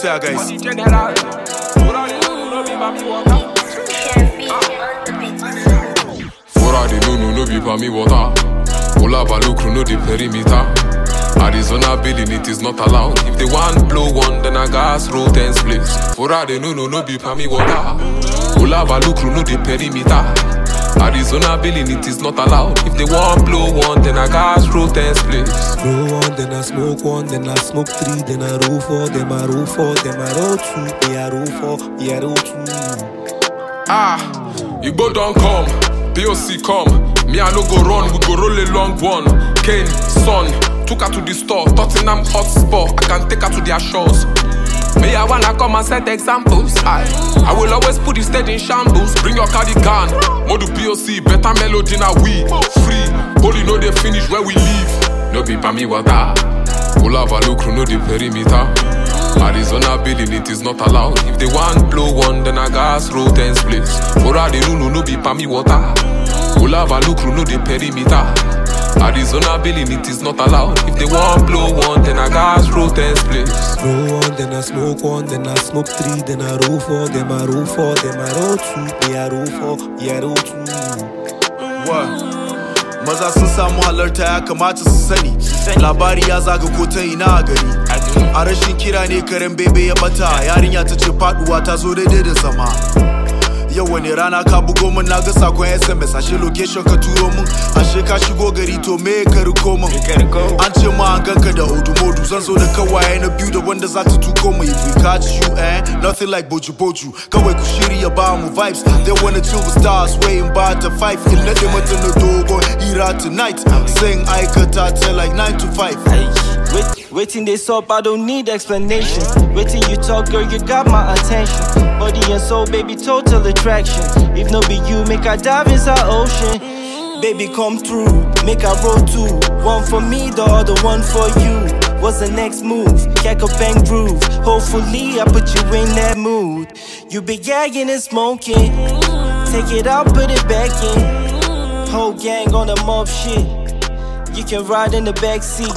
sea, guys. Fora de Nuno, no be me water. Ola Balukru, no the perimeter. Arizona building it is not allowed. If they want blow one, then I gas roll ten splits. For all they no no be pami water. no the perimeter. Arizona building it is not allowed. If they want blow one, then I gas intense place. Roll one, then I smoke one, then I smoke three, then I roll four, then I roll four, then I roll two, me I roll four, roll two. Ah, Igbo don come, POC come, me I no go run, we go roll long one. Kane, son, took her to the store, Tottenham hotspot, I can take her to their shores. Me, I wanna come and set examples. I, I will always put the stage in shambles. Bring your cardigan, modu POC, better melody now we free. Holy no they finish where we leave. No be me water. Pull up a look, no the perimeter. Arizona building it is not allowed. If they want blow one, then I gas roll ten splits. Ora the rule no be me water. Pull up a look, no the perimeter. Arizona billing, it is not allowed. If they want blow one, then I gas roll ten splits. Roll one, then I smoke one, then I smoke three, then I roll four, then I roll four, then I roll two, yeah I roll four, yeah I roll two. What? maza sun samu halarta ya kamata su sani labari ya zaga ko ta ina a gari a rashin kira ne karen bebe ya bata yarinya ta ce faduwa ta zo daidai da zama yau wani rana ka bugo min na ga sakon sms ashe location ka turo min ashe ka shigo gari to me ka riko min an ce ma an ganka da hudu modu zan zo da kawaye na biyu da wanda za ta tuko mu if we catch you eh nothing like boju boju kawai ku shirya ba mu vibes they wanna chill with stars waiting by the five in na mata na dogon ira tonight sing aikata ta like 9 to 5 Waiting dey up, I don't need explanation. Waiting you talk, girl, you got my attention. Body and soul, baby, total attraction. If no be you, make I dive inside ocean. Baby, come through, make I roll too One for me, the other one for you. What's the next move? Jack a bang groove. Hopefully, I put you in that mood. You be gagging and smoking. Take it out, put it back in. Whole gang on the mob shit. You can ride in the back seat.